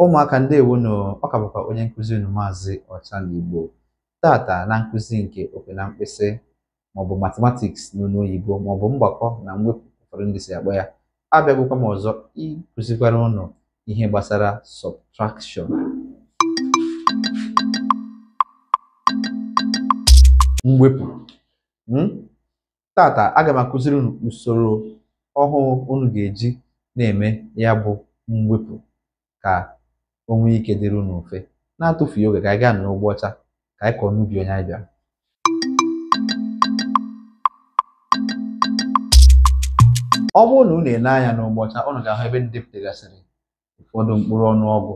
Ụmụaka ndị ọ ọka bụkwa onye nkụzi unu maazị igbo Tata na nkụzi nke okwe na mkpịsị maọbụ mathematiks n'olu oyibo maọbụ mgbakọ na mwepụ ụfọdụ ndị si akpọ ya, abịagokwa m ọzọ ịkụzikwara ụnụ ihe gbasara sọbtrakshọn. Mwepụ. mm? Tata aga m akụziri unu usoro ọhụụ unu ga-eji na-eme ya bụ mwepụ ka o nwee ike dịrị unu mfe na-atụfughị oge ka anyị gaa n'ụgbọ ọcha ka anyị kọọ n'ubi onye anyị bịara ọ bụrụ na ụ na-ele anya n'ụgbọ ọcha unu ga-ahụ ebe ndepụtagasịrị ụfọdụ mkpụrụ ọgụ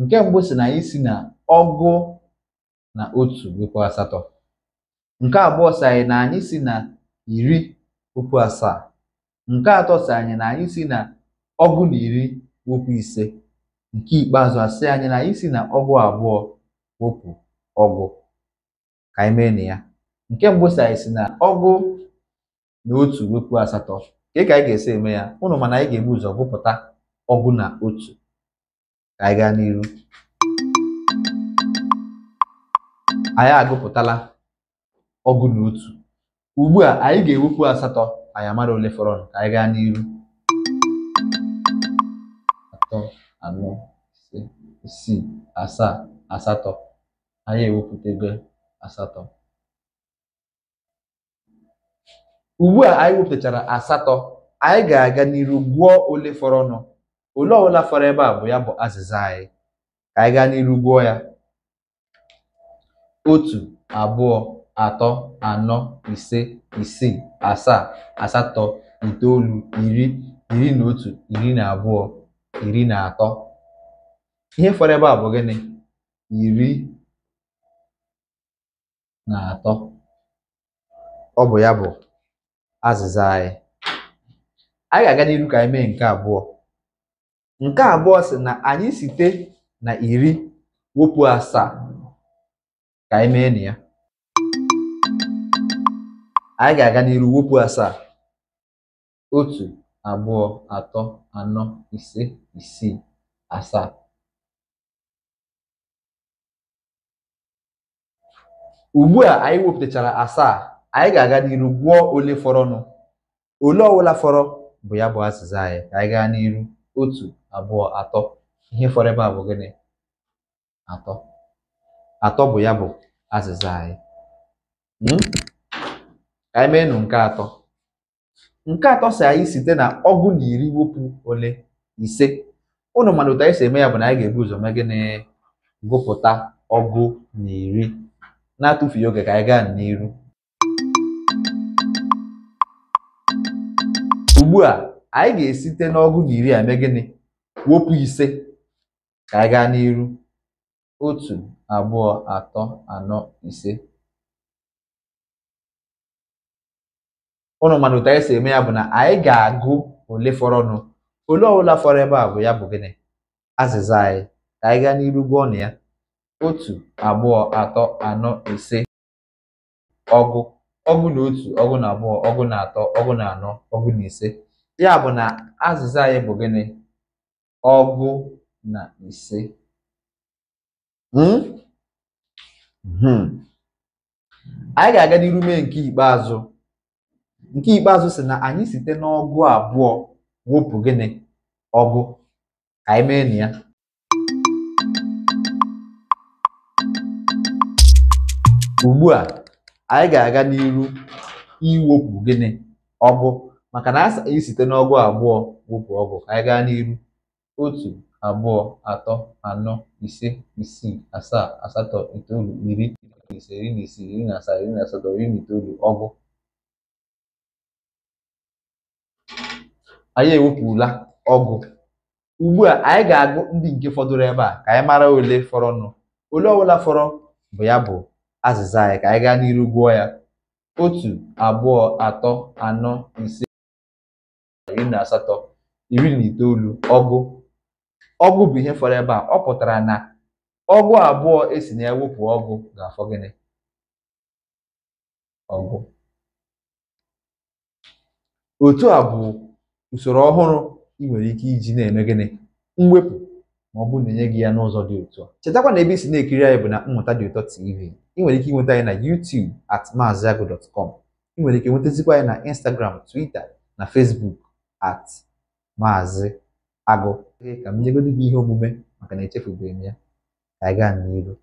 nke mbụ si na anyị si na ọgụ na otu wekwa asatọ nke abụọ si anyị na anyị si na iri okwu asaa nke atọ si anyị na anyị si na ọgụ na iri okwu ise Nke ikpeazụ asị anyị na anyị si na ọgwụ abụọ wepụ ọgụ ka anyị mee na ya nke mbụ si anyị si na ọgụ na otu wepụ asatọ ka ka anyị ga-esi eme ya ụnụ mana anyị ga-ebu ụzọ gụpụta ọgụ na otu ka anyị gaa n'iru anyị agụpụtala ọgụ na otu ugbu a anyị ga-ewepụ asatọ anyị amara ole fọrọ ka anyị gaa n'iru atọ anọ ise isii asaa asatọ anyị ewepụtago asatọ ugbu a anyị wepụtachara asatọ anyị ga-aga n'iru ole ole fọrọnụ ole ọbụla fọrọ ebe a bụ ya bụ azịza anyị ka anyị gaa n'iru ya otu abụọ atọ anọ ise isii asaa asatọ itoolu iri iri na otu iri na abụọ iri na atọ ihe fọrọ ebe a bụ gịnị iri na atọ ọ bụ ya bụ azịza anyị anyị ga-aga n'iru ka anyị mee nke abụọ nke abụọ sị na anyị site na iri wepụ asaa ka anyị mee na ya anyị ga-aga n'iru wepụ asaa otu abụọ atọ anọ ise isii asaa ugbu a anyị wepụtachara asaa anyị ga-aga n'iru gwụọ ole fọrọnụ ole ọwụla fọrọ bụ ya bụ azịza anyị ka anyị gaa n'iru otu abụọ atọ ihe fọrọ ebe a bụ gịnị atọ atọ bụ ya bụ azịza anyị hmm? anyị nụ nke atọ nke atọ si anyị site na ọgụ na iri wepụ ole ise ụnụ mana otu anyị eme ya bụ na anyị ga-ebu ụzọ mee gịnị gụpụta ọgụ na iri na-atụfughị oge ka anyị gaa n'iru ugbu a anyị ga-esite n'ọgụ na iri a gịnị wepụ ise ka anyị gaa n'iru otu abụọ atọ anọ ise ụnụ mana otu anyị e si eme ya bụ na anyị ga-agụ ole fọrọnụ ole ọbụla fọrọ ebe a bụ ya bụ gịnị azịza anyị ka anyị gaa n'iru gụọ na ya otu abụọ atọ anọ ise ọgụ ọgụ na otu ọgụ na abụọ ọgụ na atọ ọgụ na anọ ọgụ na ise ya bụ na azịza anyị bụ gịnị ọgụ na ise hmm? Hmm. anyị ga-aga n'iru mee nke ikpeazụ nke ikpeazụ si na anyị site n'ọgụ abụọ wụpụ gịnị ọgụ anyị mee na ya ugbu a anyị ga-aga n'iru iwepụ gịnị ọgụ maka na anyị site n'ọgụ abụọ wụpụ ọgụ anyị gaa n'iru otu abụọ atọ anọ ise isii asaa asatọ itoolu iri ise iri na isii iri na asaa na asatọ iri na itoolu ọgụ anyị ewepụla ọgụ ugbu a anyị ga-agụ ndị nke fọdụrụ ebe a ka anyị mara ole fọrọnụ ole ọbụla fọrọ bụ ya bụ azịza anyị ka anyị gaa n'iru gụọ ya otu abụọ atọ anọ ise iri na asatọ iri na itoolu ọgụ ọgụ bụ ihe fọrọ ebe a ọ pụtara na ọgụ abụọ esi na ya wepụ ọgụ ga-afọ gịnị ọgụ otu a bụ usoro ọhụrụ ị nwere ike iji na-eme gịnị mwepụ ma ọ bụrụ na enye gị ya n'ụzọ dị ụtọ chetakwa na ebe isi na-ekiri anyị bụ na mmụta dị ụtọ tv ị nwere ike ịnweta anyị na YouTube at ị nwere ike nwetazikwa anyị na Instagram Twitter na Facebook at maazị agụ ka m nyegodi gị ihe omume maka na echefubeghị m ya ka anyị gaa n'iru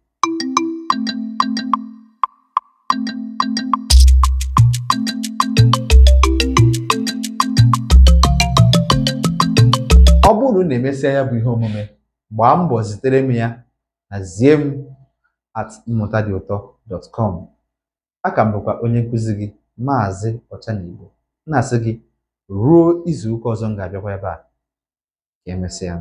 emesịa ya bụ ihe omume gbaa mbọ zitere m ya na zie at mmụta dị ụtọ a aka m bụkwa onye nkụzi gị maazị ọcha na-asị gị ruo izu ụka ọzọ m ga-abịakwa ebe a ka emesịa